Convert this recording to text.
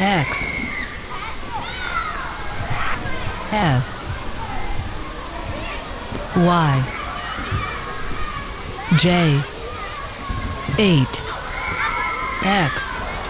X S Y J 8 X